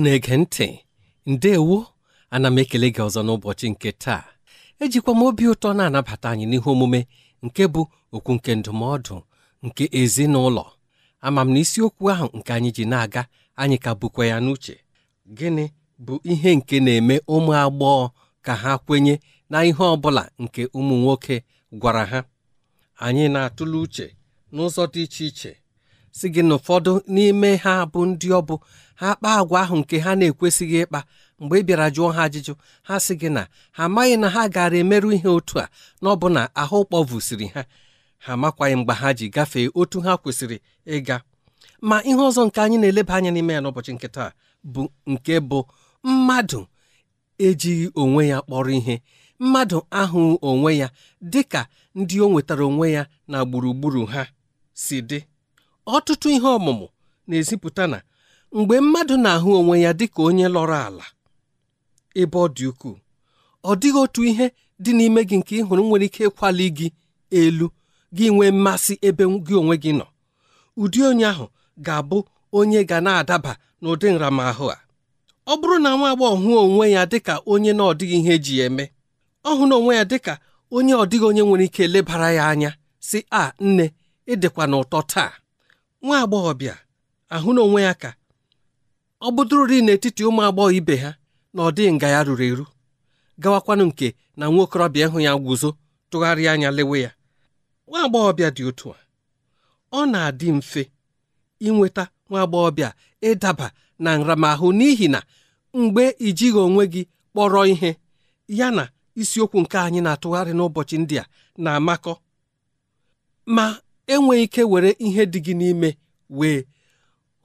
na-ege ntị ndewo ana m ekele gị ọzọ n'ụbọchị nke taa ejikwa m obi ụtọ na-anabata anyị n'ihe omume nke bụ okwu nke ndụmọdụ nke ezinụlọ ama m na isiokwu ahụ nke anyị ji na-aga anyị ka bụkwa ya n'uche gịnị bụ ihe nke na-eme ụmụ agbọghọ ka ha kwenye na ihe ọ bụla nke ụmụ nwoke gwara ha anyị na-atụle uche n'ụzọ dị iche iche si gị na ụfọdụ n'ime ha bụ ndị ọ bụ ha kpaa agwa ahụ nke ha na-ekwesịghị ịkpa mgbe ị bịara jụọ ha ajụjụ ha sị gị na ha amaghị na ha gara emerụ ihe otu a na ọbụna ahụ kpọvusiri ha ha amakwaghị mgbe ha ji gafee otu ha kwesịrị ịga ma ihe ọzọ nke anyị na-eleba anya n'ime ya n'ụbọchị nkịta bụ nke bụ mmadụ ejighị onwe ya kpọrọ ihe mmadụ ahụ onwe ya dị ka ndị o nwetara onwe ya na gburugburu ha si dị ọtụtụ ihe ọmụmụ na-ezipụta na mgbe mmadụ na-ahụ onwe ya dịka onye lọrọ ala ebe ọ dị ukwuu ọ dịghị otu ihe dị n'ime gị nke ị hụrụ nwere ike ịkwali gị elu gị nwee mmasị ebe gị onwe gị nọ ụdị onye ahụ ga-abụ onye ga na-adaba n'ụdị nramahụ a ọ bụrụ na nwa agbọghọ hụ onwe ya dịka onye na ọdịghị ihe eji eme ọ hụ na onwe ya dịka onye ọdịghị onye nwere ike lebara ya anya si a nne ịdịkwa n'ụtọ taa nwa agbọghọbịa ahụ na onwe ya ka ọ bụdụrụri n'etiti ụmụ agbọghọ ibe ha na ọ dịghị nga ya ruru eru gawakwanụ nke na nwa okorobịa ịhụ ya guzo tụgharịa anya lewe ya nwa agbọghọbịa dị otu a ọ na-adị mfe inweta nwa agbọghọbịa ịdaba na nramahụ n'ihi na mgbe ijighị onwe gị kpọrọ ihe ya na isiokwu nke anyị na-atụgharị n'ụbọchị ndị a na-amakọ ma enweghị ike were ihe dị gị n'ime wee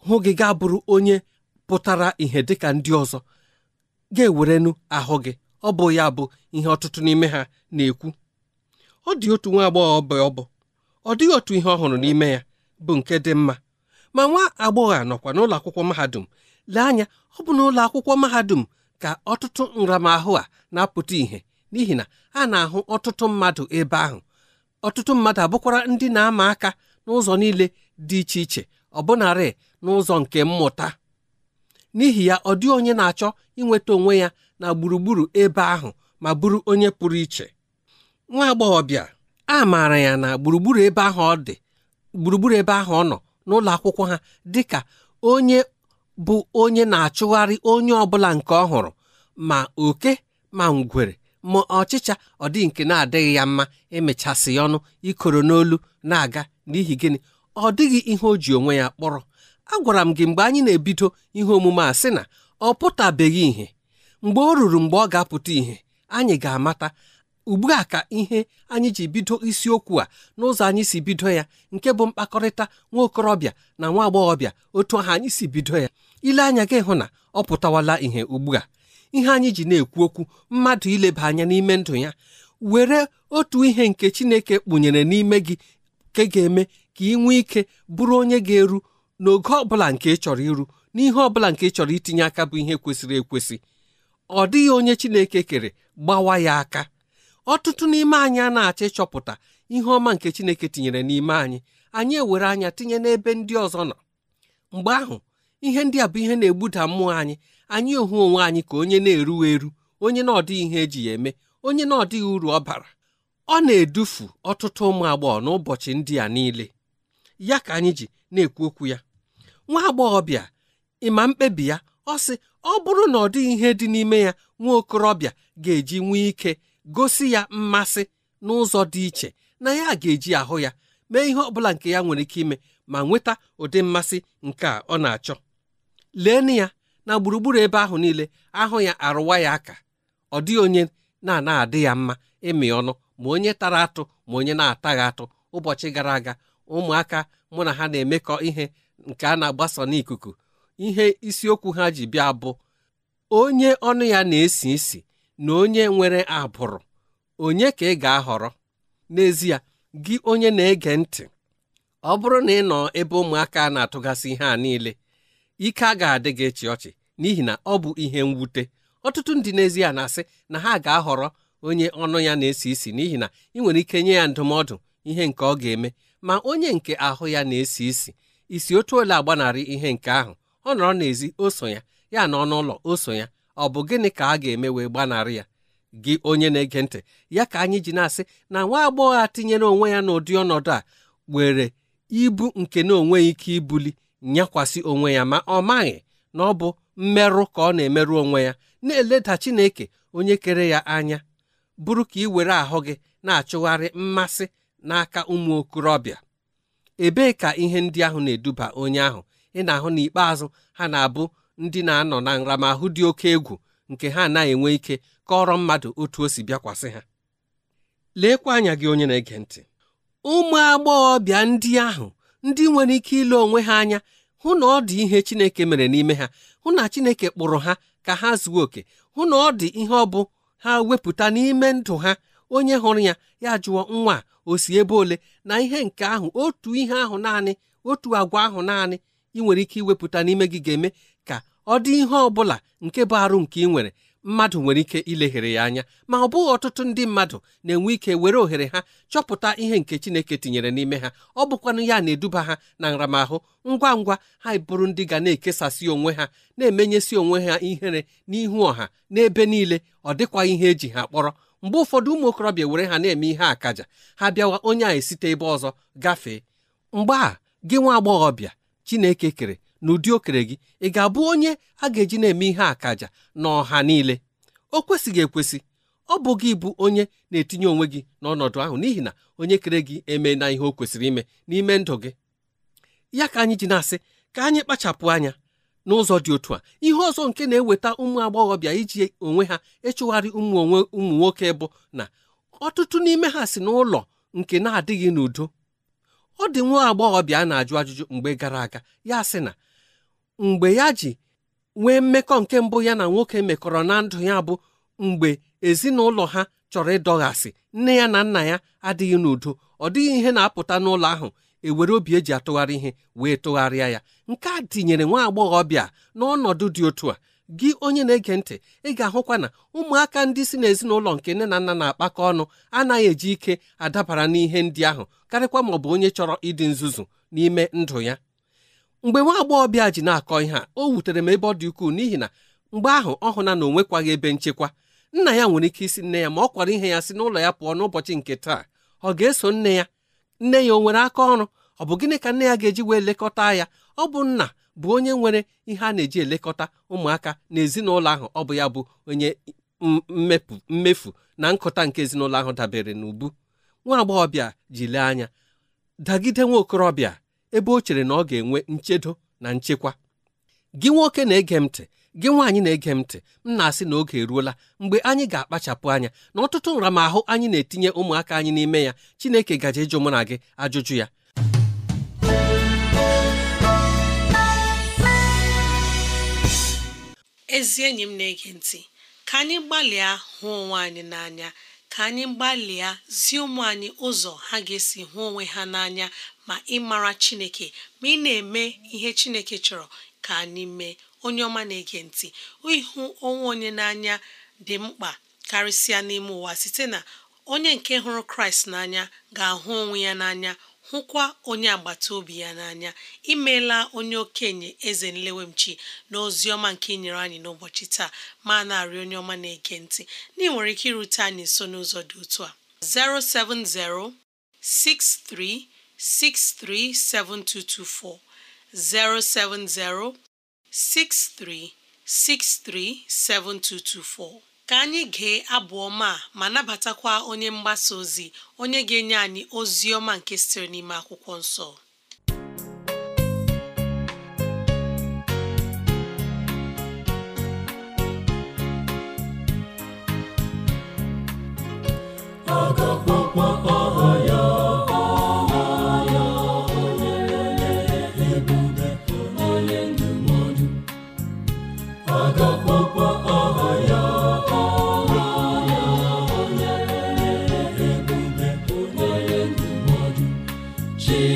hụ gị ga bụrụ onye pụtara ihe dịka ndị ọzọ ga-ewerenu ahụ gị ọ bụ ya bụ ihe ọtụtụ n'ime ha na-ekwu ọ dị otu nwa agbọghọ ọbụ ọbụ ọ dịghị otu ihe ọhụrụ n'ime ya bụ nke dị mma ma nwa agbọghọ a nọkwa n'ụlọ akwụkwọ mahadum lee anya ọ bụ n'ụlọ akwụkwọ mahadum ka ọtụtụ nramahụ a na-apụta ìhè n'ihi na a na-ahụ ọtụtụ mmadụ ebe ahụ ọtụtụ mmadụ abụkwara ndị na-ama aka n'ụzọ niile dị iche iche ọbụnarị n'ụzọ nke mmụta n'ihi ya ọ dị onye na-achọ inweta onwe ya na gburugburu ebe ahụ ma bụrụ onye pụrụ iche nwa agbọghọbịa a maara ya na gburugburu ebe ahụ ọ dị gburugburu ebe ahụ ọ nọ n'ụlọ akwụkwọ ha dị ka onye bụ onye na-achụgharị onye ọ bụla nke ọ hụrụ ma oke ma ngwere ma ọchịcha ọ dị nke na-adịghị ya mma emechasị ya ọnụ ikoro n'olu na-aga n'ihi gịnị ọ dịghị ihe o ji onwe ya kpọrọ agwara m gị mgbe anyị na-ebido ihe omume a sị na ọ pụtabeghị ihe mgbe ọ ruru mgbe ọ ga-apụta ihe anyị ga-amata ugbu a ka ihe anyị ji bido isiokwu a n'ụzọ anyị si bido ya nke bụ mkpakọrịta nwa okorobịa na nwa agbọghọbịa otu ahụ anyị si bido ya ile anya gị hụ na ọ pụtawala ihe ugbu a ihe anyị ji na-ekwu okwu mmadụ ileba anya n'ime ndụ ya were otu ihe nke Chineke kpụnyere n'ime gị ke ga-eme ka ị nwee ike bụrụ onye ga-eru n'oge ọbụla nke ị chọrọ iru n'ihe ọbụla nke ị chọrọ itinye aka bụ ihe kwesịrị ekwesị ọ dịghị onye Chineke kere gbawa ya aka ọtụtụ n'ime anyị a na-achọ ịchọpụta ihe ọma nke Chineke tinyere n'ime anyị anyị ewere anya tinye n'ebe ndị ọzọ nọ mgbe ahụ ihe ndị a bụ ihe na-egbuda mmụọ anyị anyị ohu onwe anyị ka onye na-erughị eru onye na ọdịghị ihe eji ya eme onye na ọdịghị uru ọ bara ọ na-edufu ọtụtụ ụmụ agbọghọ n'ụbọchị ndị a niile ya ka anyị ji na-ekwu okwu ya nwa agbọghọbịa ịma mkpebi ya ọ sị ọ bụrụ na ọ dịghị ihe dị n'ime ya nwa okorobịa ga-eji nwee ike gosi ya mmasị n'ụzọ dị iche na ya ga-eji ahụ ya mee ihe ọbụla nke ya nwere ike ime ma nweta ụdị mmasị nke a ọ na-achọ lee na ya na gburugburu ebe ahụ niile ahụ ya arụwa ya aka ọ dịghị onye na-ana adị ya mma ịmị ọnụ ma onye tara atụ ma onye na-ataghị atụ ụbọchị gara aga ụmụaka mụ na ha na-emekọ ihe nke a na-agbasa n'ikuku ihe isiokwu ha ji bịa bụ onye ọnụ ya na-esi isi na onye nwere abụrụ onye ka ị ga-ahọrọ n'ezie gị onye na-ege ntị ọ bụrụ na ị nọ ebe ụmụaka na-atụgasị ihe a niile ike a ga-adị gị ịchị ọchị n'ihi na ọ bụ ihe mwute ọtụtụ ndị n'ezie na-asị na ha ga-ahọrọ onye ọnụ ya na-esi isi n'ihi na ị nwere ike nye ya ndụmọdụ ihe nke ọ ga-eme ma onye nke ahụ ya na-esi isi isi otu ole agbanarị ihe nke ahụ ọ nọrọ n'ezi o so ya ya na ọnụ ụlọ o so ya ọ bụ gịnị ka a ga-eme wee gbanarị ya gị onye na-ege ntị ya ka anyị ji na-asị na nwa agbọghọ a tinyere onwe ya n'ụdị ọnọdụ a were ibu nke na onwe ike ibuli nyekwasị onwe ya ma ọ maghị na ọ bụ mmerụ ka ọ na-emerụ onwe ya na-eleda Chineke onye kere ya anya bụrụ ka ị were ahụ gị na-achụgharị mmasị n'aka ụmụ okorobịa ebee ka ihe ndị ahụ na-eduba onye ahụ ị na-ahụ n'ikpeazụ ha na-abụ ndị na-anọ na nramahụ dị oke egwu nke ha anaghị enwe ike kọrọ mmadụ otu o si bịakwasị ha leekwa anya gị onye na-ege ntị ụmụ agbọghọbịa ndị ahụ ndị nwere ike ile onwe ha anya hụ na ọ dị ihe Chineke mere n'ime ha hụ na Chineke kpụrụ ha ka ha zuo oke hụ na ọ dị ihe ọ bụ ha wepụta n'ime ndụ ha onye hụrụ ya ya jụọ nwa osi osi ebe ole na ihe nke ahụ otu ihe ahụ naanị otu agwa ahụ naanị ị nwere ike iwepụta n'ime gị ga-eme ka ọ dị ihe ọ bụla nke bụ arụ nke ị nwere mmadụ nwere ike ileghere ya anya ma ọ bụghị ọtụtụ ndị mmadụ na-enwe ike were ohere ha chọpụta ihe nke Chineke tinyere n'ime ha ọ bụkwanụ ya na-eduba ha na nramahụ ngwa ngwa ha bụrụ ndị ga na-ekesasị onwe ha na-emenyesi onwe ha ihere n'ihu ọha n'ebe niile ọ dịkwa ihe eji ha kpọrọ mgbe ụfọdụ ụmụ okorobịa were ha na-eme ihe akaja ha bịawa onye a esite ebe ọzọ gafee mgbe a gị nwa agbọghọbịa Chineke kere n'ụdị okere gị ị ga-abụ onye a ga-eji na-eme ihe akaja na ọha niile o kwesịghị ekwesị ọ bụ gị bụ onye na-etinye onwe gị n'ọnọdụ ahụ n'ihi na onye kere gị eme na ihe o kwesịrị ime n'ime ndụ gị ya ka anyị ji na-asị ka anyị kpachapụ anya n'ụzọ dị otu a ihe ọzọ nke na-eweta ụmụ agbọghọbịa iji onwe ha ịchụgharị ụmụ onwe ụmụ nwoke bụ na ọtụtụ n'ime ha si n'ụlọ nke na-adịghị n'udo ọ dị nwa agbọghọbịa a na-ajụ ajụjụ mgbe gara aga ya sị na mgbe ya ji nwee mmekọ nke mbụ ya na nwoke mekọrọ na ndụ ya bụ mgbe ezinụlọ ha chọrọ ịdọghasị nne ya na nna ya adịghị n'udo ọ dịghị ihe na-apụta n'ụlọ ahụ ewere obi eji atụgharị ihe wee tụgharịa ya nke a tinyere nwa agbọghọbịa n'ọnọdụ dị otu a gị onye na-ege ntị ị ga-ahụkwa na ụmụaka ndị si n'ezinụlọ nke nne na nna na-akpakọ ọnụ anaghị eji ike adabara n'ihe ndị ahụ karịkwa maọ bụ onye chọrọ ịdị nzuzu n'ime ndụ ya mgbe nwa agbọghọbịa ji na-akọ ihe a o wutere m ebe ọ dị ukwuu n'ihi na mgbe ahụ ọ hụna na o ebe nchekwa nna ya nwere ike isi nne ya ma ọ kwara ihe ya si n'ụlọ ya pụọ n'ụbọchị nke taa ọ ga-eso nne ya nne ya o nwere aka ọrụ ọ bụ gịnị ka nne ya ga-eji wee lekọta ya ọ bụ nna bụ onye nwere ihe a na-eji elekọta ụmụaka na ezinụlọ ahụ ọ bụ ya bụ onye mmefu na nkụta nke ezinụlọ ahụ dabere n'ubu nwa agbọghọbịa ji lee anya dagide nwa okorobịa ebe o chere na ọ ga-enwe nchedo na nchekwa gị nwoke na-ege m ntị gị nwaanyị na-ege m ntị m na-asị na oge eruola mgbe anyị ga-akpachapụ anya na ọtụtụ nramahụ anyị na-etinye ụmụaka anyị n'ime ya Chineke gaje ịjụ mụ na gị ajụjụ ya ezi enyi m na-ege ntị ka anyị gbalịa hụ onwe anyị n'anya ka anyị gbalịa zie ụmụ anyị ụzọ ha ga-esi hụ onwe ha n'anya ma ịmara Chineke ma ị na-eme ihe Chineke chọrọ ka anyị mee onye ọma na-ege ntị ịhụ onwe onye n'anya dị mkpa karịsịa n'ime ụwa site na onye nke hụrụ Kraịst n'anya ga-ahụ onwe ya n'anya hụkwa onye agbata obi ya n'anya imeela onye okenye eze nlewemchi na ọma nke inyere anyị n'ụbọchị taa ma na-arị onye ọma na-ege ntị ndị nwere ike irute anyị nso n'ụzọ dị otu a 07063637224 07063637224 ka anyị gee abụ ọma ma nabatakwa onye mgbasa ozi onye ga-enye anyị ozi ọma nke sitere n'ime akwụkwọ nsọ Jesus.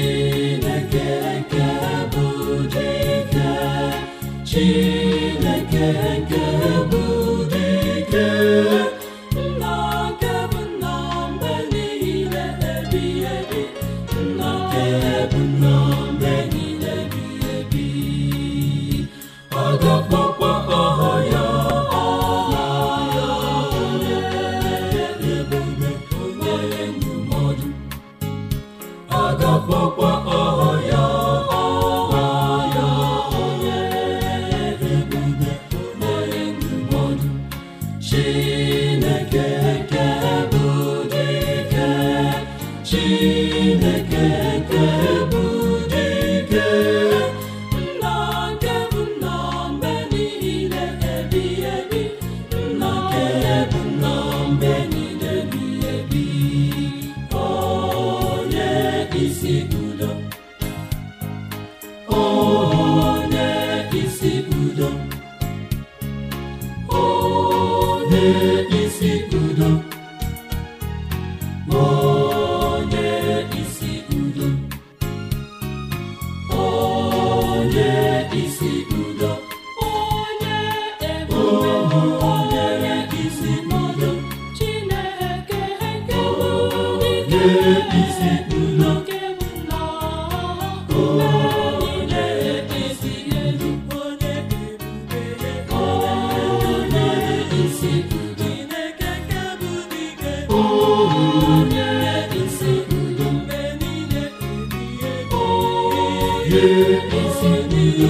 si n'iyi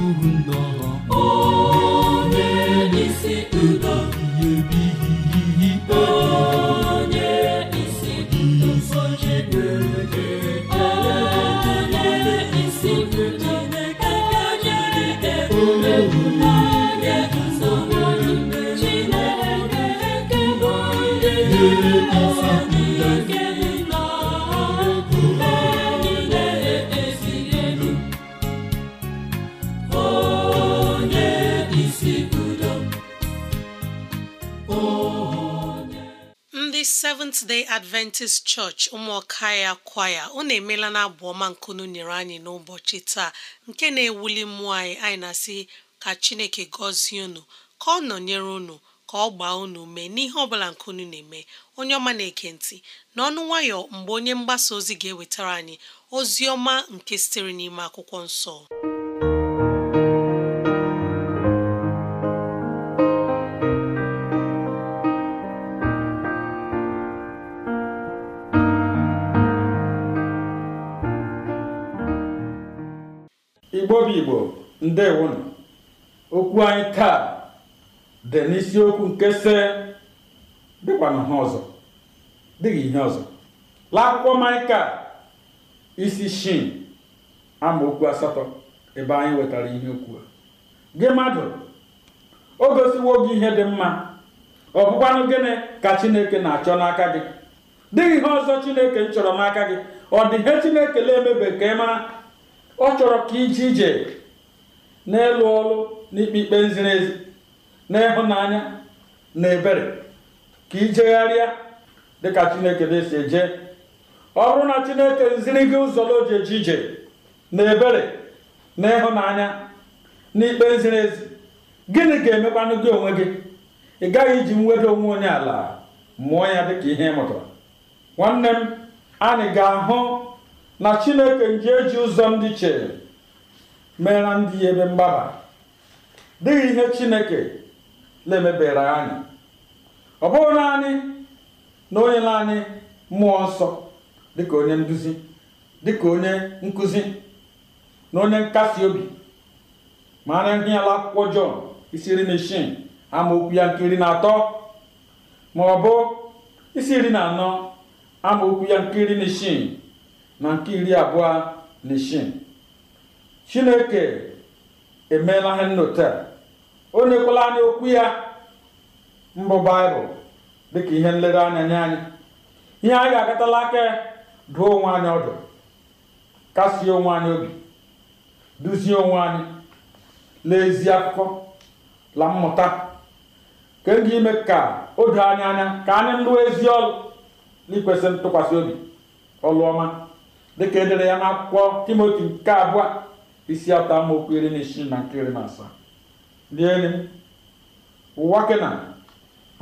ndị Seventh Day Adventist Church ụmụọka ya kwaya unu emeela na abụ ọma nkunu nyere anyị n'ụbọchị taa nke na-ewuli mmụọ anyị anyị na-asị ka Chineke gọzie unu ka ọ nọnyere unu ka ọ gbaa unu mee n'ihe ọbụla nkunu na-eme onye ọma na ekentị ntị n'ọnụ nwayọ mgbe onye mgbasa ozi ga-ewetara anyị ozi ọma nke sitere n'ime akwụkwọ nsọ Igbo bụ Igbo na okwu anyị taa dị n'isiokwu nke se dịkwana ha ọzọ dịghị ihe ọzọ laakwụkwọ Maịka isi shin amaokwu asatọ ebe anyị wetara ihe okwu gị mmadụ o gosiwo gị ihe dị mma ọ bụkwanụ gịnị ka Chineke na-achọ n'aka gị dịghị ihe ọzọ Chineke m chọrọ n'aka gị ọ dị ihe Chineke na-emebe ka ị mara ọ chọrọ ka ije ije n'elu ọrụ n'ikpe ikpe ziri ezi n'ịhụnanya na ebere ka ijegharịa dịka chineke na si eje ọ bụrụ na chineke ziri gị ụzọ o eje ije na ebere na ịhụnanya na ikpe ziri ezi gịnị ga-emekwanụ gị onwe gị ị gaghị iji mweda onwe onye ala mụọ ya dịka ihe ịmụta mụtara nwanne m anyị ga-ahụ na chineke nji eji ụzọ ndị chere mere ndị ebe mgbaba dịghị ihe chineke na-emebere anyị ọ bụghị naanị na onye naanị mmụọ nsọ dịka onye nduzi dịka onye nkuzi na onye nkasi obi ma na ihe ala akwụkwọ Jọn isi iri na isii amaokwu ya nke iri na atọ ma ọ bụ isi iri na anọ amaokwu ya nke iri na isii na nke iri abụọ na isii chineke emeela ihe nnọta o nyekwala anyị okwu ya mbụ baịbụl dịka ihe nlere nye anyị ihe anyị ga-agatala aka dụọ onwe anyị ọdụ kasie onwe anyị obi duzie onwe anyị n'ezi akụkọ la mmụta ka ime ka o doo anyị anya ka anyị lụọ ezi ọrụ n'ikwesị ntụkwasị obi ọlụọma dịka edere ya n'akwụkwọ timoti nke abụọ isi atọ amaokwu iri na isii na nke iri na asaa ndị enyi m ụwa kena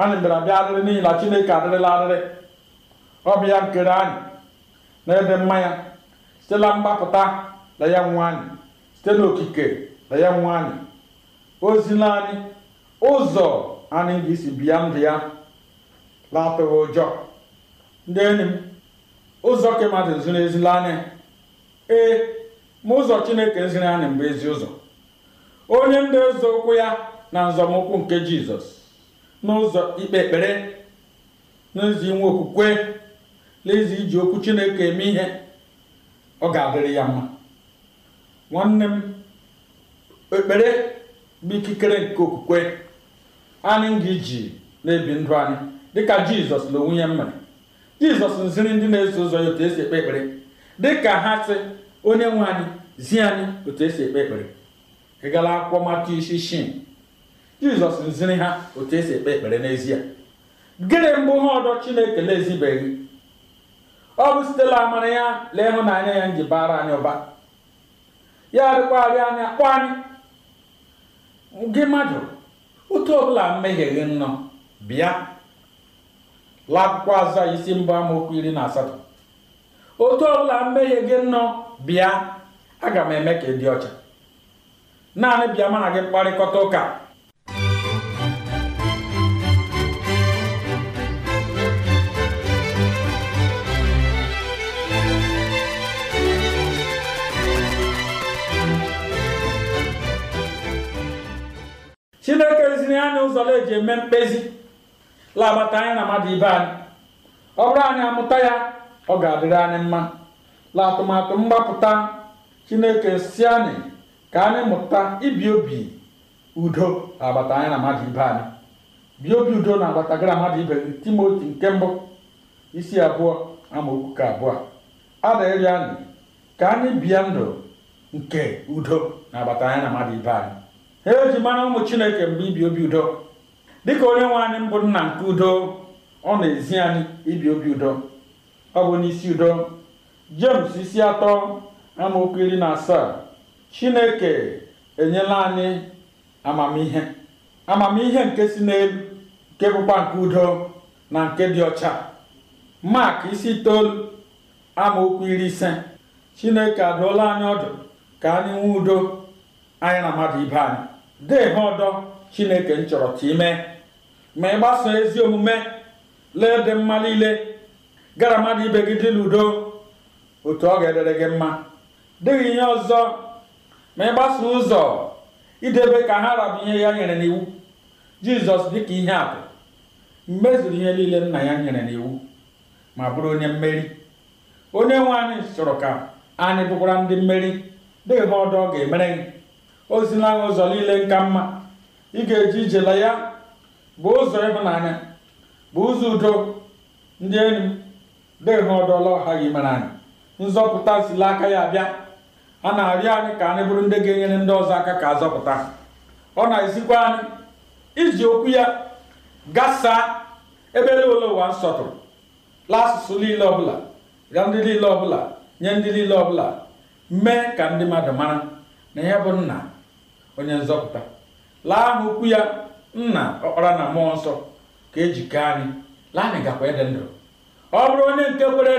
anyị bịara bịa adịrị n'ihi na chineke adịrịla arịrị ọbịa bụ nkere anyị na-ede mmanya site na mgbapụta na ya nwe anyị site n'okike na ya nwe anyị ozila anyị ụzọ anyị ga-esi bịa ndụ ya na-atụghị ụjọ ndị enyi m ụzọ ka mmadụ ziri ezila anya ee ma ụzọ chineke ziri anyị mgbe ezi ụzọ onye ndị okwu ya na nzọmụkwụ nke jizọs n'ụzọ ikpe ekpere n'ezi inwe okwukwe n'ezi iji okwu chineke eme ihe ọ ga-adịrị ya mma nwanne m ekpere bụ ikikere nke okwukwe anyị ga-eji na-ebi ndụ anyị dịka jizọs na onwe ya jizọs ziri ndị na-eso ụzọ ya otu esi ekpe ekpere dị ka ha sị onye nwe anyị zi anyị otu esi ekpe ekpere ị akwụkwọ mata isi shin jizọs ziri ha otu esi ekpe ekpere n'ezie gịnị mbụ ha ọdọ chineke na-ezibeghị ọ bụ sitela amara ya lee ịhụnanya ya nji bara anyị ụba ya adịkwarị anyị akpọ anyị gị mmadụ otu ọbụla mmehie gị nnọọ bịa la akwụkwọ isi mbụ amaokwu iri na asatọ otu ọbụla mmehie gị nọ bịa aga m eme ka ị dị ọcha naanị bịa mana gị kparịkọta ụka chineke ziri anyị ụzọ eji eme mkpezi lamata anyị na mmadụ ibe anyị ọ bụrụ anyị amụta ya ọ ga-adịrị anyị mma atụmatụ mgbapụta chineke si anyị ka anyị mụta ibi obi udo agbata anyị na mmadụ ibe anyị bi obi udo na agbata gị mmadụ ibe gị timoti nke mbụ isi abụọ ama ka abụọ adịrị anyị ka anyị bịa ndụ nke udo na agbata anyị na mmadụ ibe anyị ha eji mara ụmụ chineke mgbe ibi obi udo dịka onye nwe anyị mbụ nna nke udo ọ na-ezi anyị ibi obi udo ọ bụ n'isi udo jems isi atọ amaokwu iri na asaa Chineke enyela anyị amamihe amamihe nke si n'elu nke bụkwa nke udo na nke dị ọcha maak isi itoolu amaokwu iri ise Chineke adụọla anyị ọdụ ka anyị nwee udo anyị na mmadụ ibe anyị debe ọdọ chineke m chọrọ ka ime ma ị gbasoo ezi omume lee dị mma niile gara mmadụ ibe gị dị n'udo otu ọ ga-edere gị mma dịghị ihe ọzọ ma ị gbasoo ụzọ idebe ka ha rabụ ihe ya nyere n'iwu jizọs dịka ihe atụ mmezuru ihe niile nna ya nyere n'iwu ma bụrụ onye mmeri onye nwe anyị chọrọ ka anyị bụkwara ndị mmeri dịghị ha ọdọ ọ ga-emere gị ozi gị ụzọ niile nka mma ị ga-eji ijela ya bụ ụzọ ịhụnanya bụ ụzọ udo ndị enyi dịhụ ọdọla ọha gị mara anyị nzọpụta sila aka ya bịa a na-arịọ anyị ka anyị bụrụ ndị ga-enyere ndị ọzọ aka ka azọpụta ọ na-esikwa anyị iji okwu ya gasaa ebe ole ụwa nsọtụrụ lasụsụ niile ọbụla ga ndị niile ọbụla nye ndị niile ọbụla mee ka ndị mmadụ mara na ihe bụ nna onye nzọpụta laa n'okwu ya nna ọkpara na mmụọ nsọ ka ejikọ anyị laa anyị gakwa ịdị ndụ ọ bụrụ onye nke kwere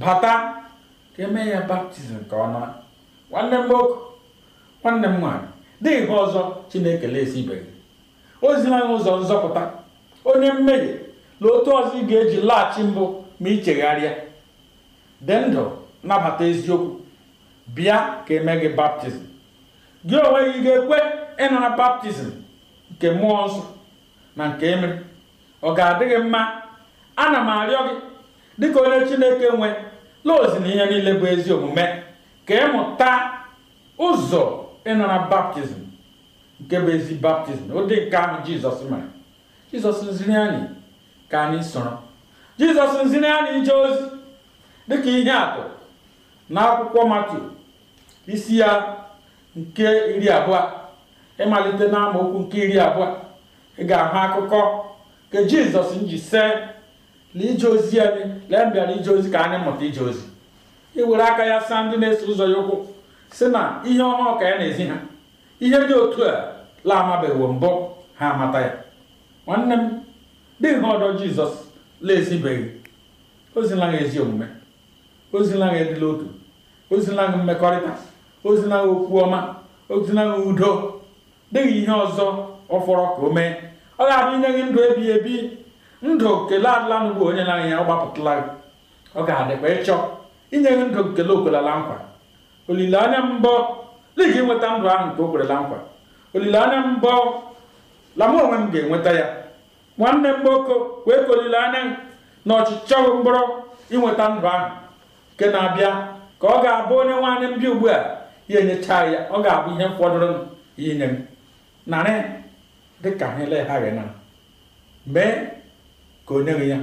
bata ka eme ya baptizim nke ọma nwanne m nwoke nwanne m nwaanyị dịghị ha ọzọ chineke esibeghị o zila anyị ụzọ nzọpụta onye mmehie na otu ọzọ ị ga-eji laghachi mbụ ma ịchegharịa chegharịa dị ndụ nabata eziokwu bịa ka eme gị baptizim gị onwe gị ga-ekwe ịnara baptizim nke mmụọ nsọ na nke emere ọ ga-adị gị mma ana m arịọ gị dịka onye chineke nwe laozi na ihe niile bụ ezi omume ka ịmụta ụzọ ịnara baptizim nke bụ ezi baptizim ụdị nke ahụ jizọs mere jizọs nziri anyị ka anyị soro jizọs nziri anyị ije ozi dịka ihe atụ na akwụkwọ matu isi ya nke iri abụọ ịmalite na amaokwu nke iri abụọ ị ga-ahụ akụkọ nke jizọs nji see na ije ozi anyị lee mbịara ije ozi ka anyị mụta ije ozi were aka ya saa ndị na-eso ụzọ ya ụkwụ si na ihe ọhụụ ka ya na-ezi ha ihe dị otu a la amabeghị mbụ ha amata ya nwanne m dị ihe ọdọ jizọs la-ezibeghị ozila ha ezi omume ozila ha edila otu ozila ha mmekọrịta ozila okwu ọma ozila udo dịghị ihe ọzọ ọ fọrọ ka o mee ọ ga-abụ inye gị ndụ ebighị ebi ndụ kele adịla bụ onye na ya ọ gị ọ ga-adịkwa ịchọ inye gị ndụ nkele okwerela nkwa olileanya mbọ ligi nweta ndụ ahụ nke o kwerela nkwa olileanya mbọ la onwe m ga-enweta ya nwanne m gboko wee ka olileanya na ọchịchọ mkpọrọ inweta ndụ ahụ nke na-abịa ka ọ ga-abụ onye nwaanyị mbịa ugbu a ihe enyechaa ya ọ ga-abụ ihe fọdụrụ ya inye m narị dịka ha eleghaghị na mee ka o nyeghị ya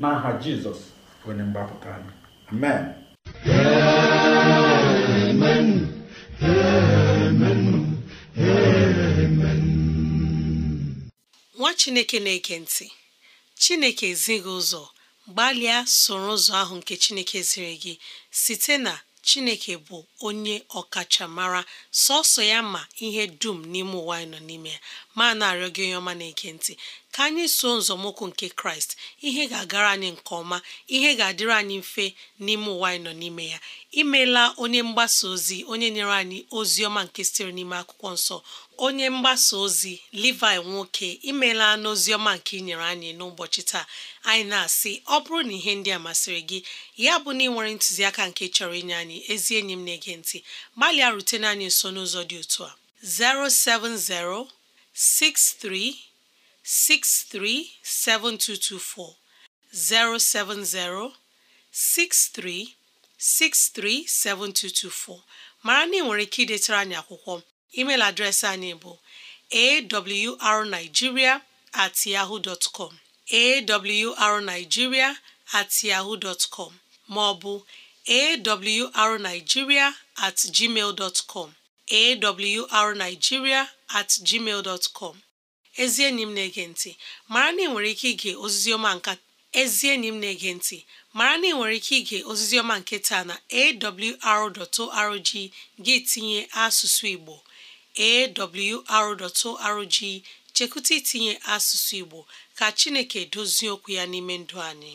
n'aha jizọs onye mgbapụta anyị amen amen amen amen nwa chineke na eke ntị chineke ezighị ụzọ gbalịa soro ụzọ ahụ nke chineke ziri gị site na chineke bụ onye ọkachamara sọsọ ya ma ihe dum n'ime ụwa nọ n'ime ya ma na-arịọ gị onye ọma na-ege ka anyị soo nzọmụkwụ nke kraịst ihe ga-agara anyị nke ọma ihe ga-adịrị anyị mfe n'ime ụwa anyị nọ n'ime ya imeela onye mgbasa ozi onye nyere anyị ozi ọma nke sitere n'ime akwụkwọ nsọ onye mgbasa ozi Levi nwoke imeela n'ozi ọma nke ị nyere anyị n'ụbọchị taa anyị na-asị ọ bụrụ na ihe ndị a masịrị gị ya bụ na ị nwere ntụziaka nke chọrọ inye anyị ezi enyi m na-ege ntị gbalịa rutena anyị nso n'ụzọ dị otu a 63 637224 070 63637224 mara na ị nwere ike idetara anyị akwụkwọ email adreesị anyị bụ awrnigeria at yahoo dot com awrnigeria at yahoo dot maọbụ awrnigeria at gmail dot com at gmail dot com ezi enyi m na-ege ntị mara na ị nwere ike ige oziziọma ọma nka ezi enyi m na-ege ntị mara na ị nwere ike ige ozizi nke taa na awr.org gị tinye asụsụ Igbo awr.org chekwụta itinye asụsụ Igbo ka Chineke dozie okwu ya n'ime ndụ anyị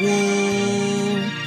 woo!